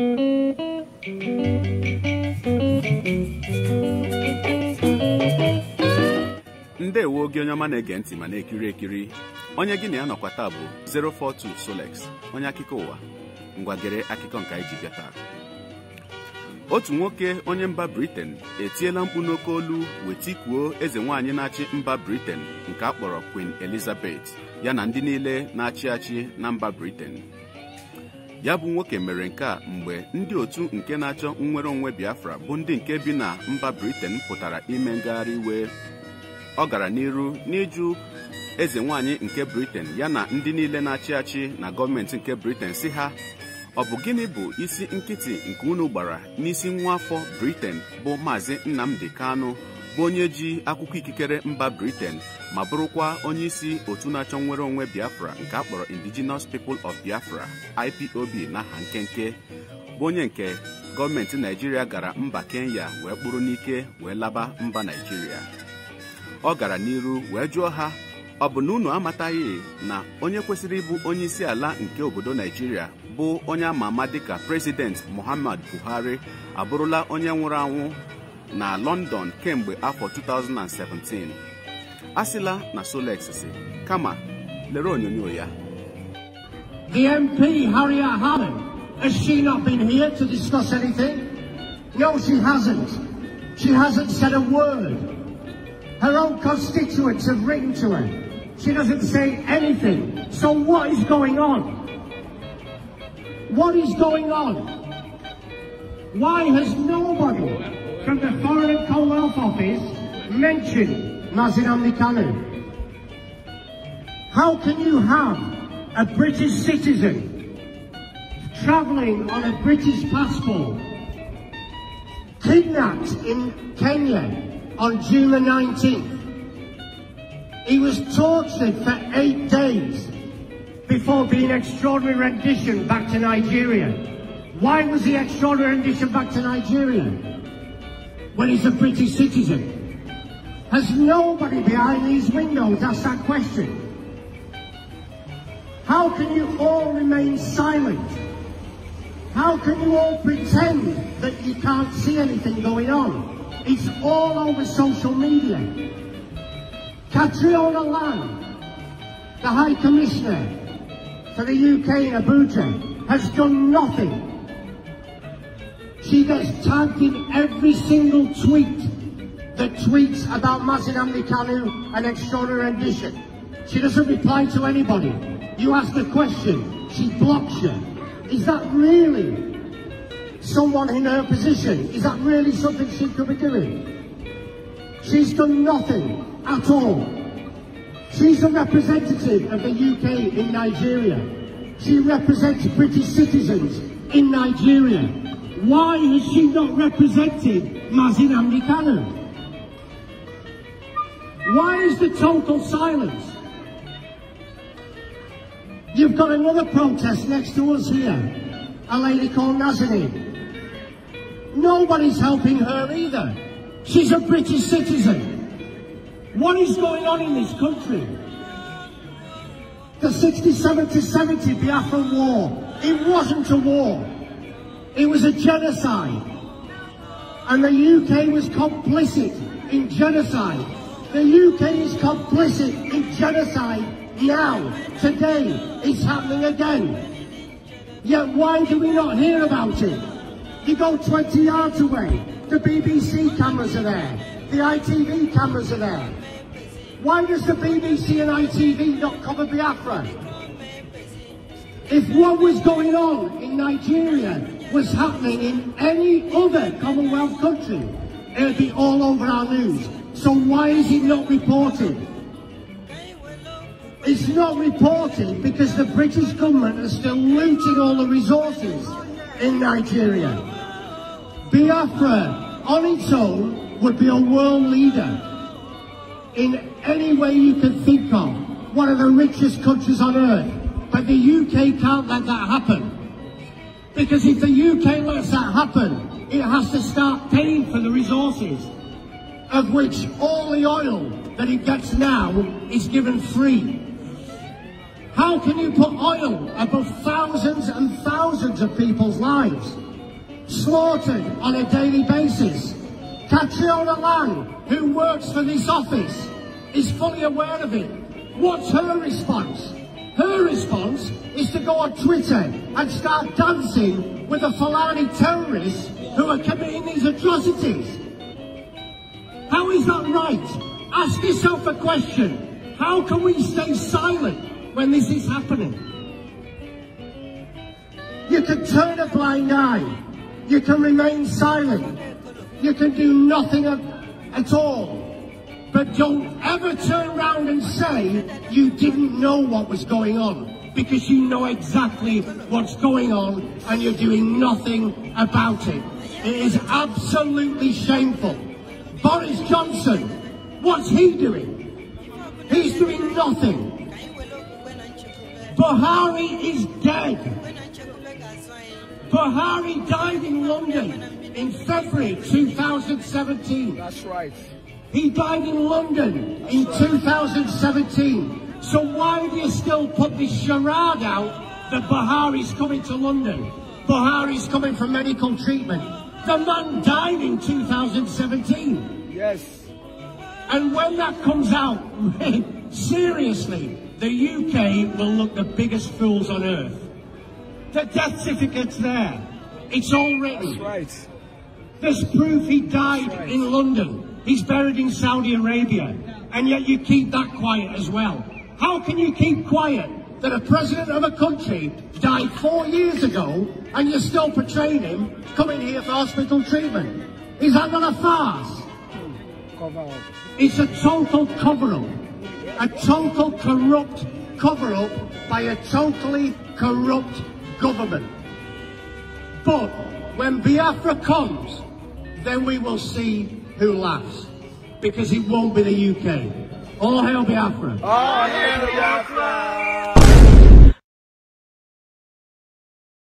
ndị ndewo gị onye ọma na-ege ntị ma na-ekiri ekiri onye gị na ya nọkwa taa bụ 042 Solex onye akụkọ ụwa ngwagere akụkọ nke anyị ji bịa taa otu nwoke onye mba Britain etiela mkpu n'oke olu wee eze nwaanyị na-achị mba Britain nke a kpọrọ Queen Elizabeth ya na ndị niile na-achị achị na mba briten. ya bụ nwoke mere nke a mgbe ndị otu nke na-achọ nnwere onwe Biafra bụ ndị nke bi na mba briten pụtara ime ngagharị iwe ọ gara n'iru n'ịjụ eze nwaanyị nke briten ya na ndị niile na-achị achị na gọọmenti nke briten si ha ọ bụ gịnị bụ isi nkịtị nke unu gbara n'isi nwa afọ bụ maazị Nnamdi Kanu bụ onye ji akwụkwọ ikikere mba briten ma bụrụkwa onye isi otu na-achọ nnwere onwe biafra nke a kpọrọ indigenous people of biafra ipob n'aha nkenke bụ onye nke gọọmenti naijiria gara mba kenya wee kpụrụ n'ike wee laba mba naijiria ọ gara n'iru wee jụọ ha ọ bụ na unu amataghị na onye kwesịrị ịbụ onye isi ala nke obodo naijiria bụ onye ama ama dịka prezident muhammad buhari abụrụla onye nwụrụ anwụ na London kemgbe afọ 2017 asịla na Solex kama lere onyonyo ya The MP Harriet Harman has she not been here to discuss anything? No she hasn't. She hasn't said a word. Her own constituents have written to her. She doesn't say anything. So what is going on? What is going on? Why has nobody office mention Nazir Amnikanu? How can you have a British citizen travelling on a British passport kidnapped in Kenya on June the 19th? He was tortured for eight days before being extraordinary rendition back to Nigeria. Why was he extraordinary rendition back to Nigeria? when he's a British citizen. Has nobody behind these windows asked that question? How can you all remain silent? How can you all pretend that you can't see anything going on? It's all over social media. Catriona Lang, the High Commissioner for the UK in Abuja, has done nothing she gets tagged in every single tweet that tweets about Mazinamni Kanu and extraordinary rendition. She doesn't reply to anybody. You ask a question, she blocks you. Is that really someone in her position? Is that really something she could be doing? She's done nothing at all. She's a representative of the UK in Nigeria. She represents British citizens in Nigeria. Why has she not represented, Mazin Amdikanu? Why is the total silence? You've got another protest next to us here, a lady called Nazanin. Nobody's helping her either. She's a British citizen. What is going on in this country? The 67 to 70 Biafra war, it wasn't a war. It was a genocide. And the UK was complicit in genocide. The UK is complicit in genocide now, today. It's happening again. Yet why do we not hear about it? You go 20 yards away, the BBC cameras are there, the ITV cameras are there. Why does the BBC and ITV not cover Biafra? If what was going on in Nigeria was happening in any other Commonwealth country, it would be all over our news. So why is it not reported? It's not reported because the British government are still looting all the resources in Nigeria. Biafra on its own would be a world leader in any way you can think of. One of the richest countries on earth. But the UK can't let that happen. Because if the UK lets that happen, it has to start paying for the resources, of which all the oil that it gets now is given free. How can you put oil above thousands and thousands of people's lives? Slaughtered on a daily basis. Catriona Lang, who works for this office, is fully aware of it. What's her response? Her response go on Twitter and start dancing with the Fulani terrorists who are committing these atrocities. How is that right? Ask yourself a question. How can we stay silent when this is happening? You can turn a blind eye. You can remain silent. You can do nothing at all. But don't ever turn around and say you didn't know what was going on because you know exactly what's going on and you're doing nothing about it. It is absolutely shameful. Boris Johnson, what's he doing? He's doing nothing. Buhari is dead. Buhari died in London in February 2017. That's right. He died in London That's in right. 2017. So why do you still put this charade out that Bahari's coming to London? Bahari's coming for medical treatment. The man died in 2017. Yes. And when that comes out, seriously, the UK will look the biggest fools on earth. The death certificate's there. It's all written. That's right. There's proof he died right. in London. He's buried in Saudi Arabia. And yet you keep that quiet as well. How can you keep quiet that a president of a country died four years ago and you're still portraying him coming here for hospital treatment? Is that not a farce? It's a total cover-up. A total corrupt cover-up by a totally corrupt government. But when Biafra comes, then we will see who laughs. Because it won't be the UK. All hail Biafra! All hail Biafra!